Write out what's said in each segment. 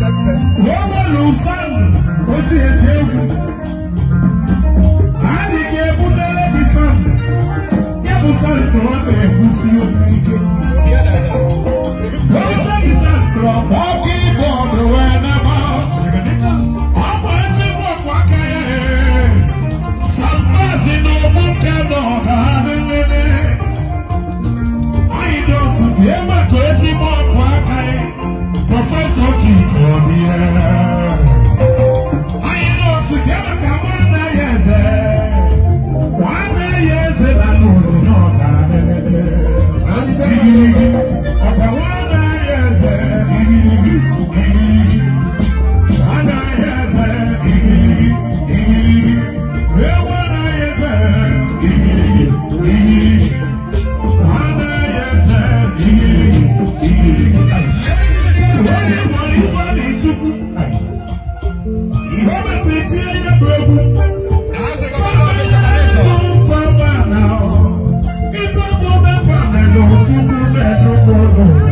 wọ́n wọ́n lò fáwọn ó ti ètè egwu. Adịghị ebutere gị fáwọn, ya bụ fáwọn na ọ na-egwusi okwu Thank you.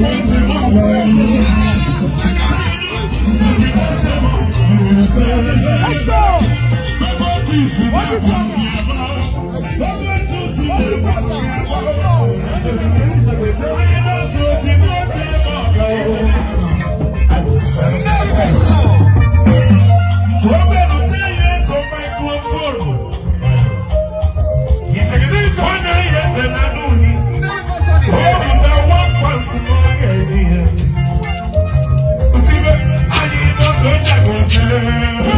Let's go! What you talking Thank you.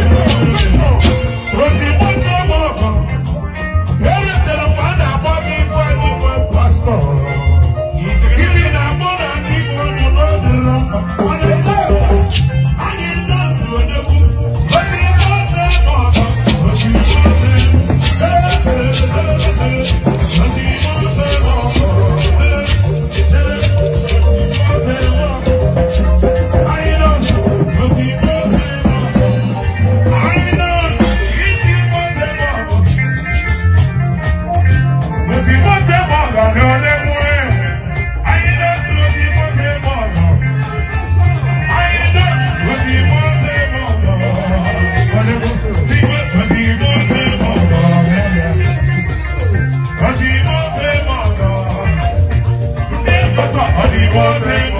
But I need one thing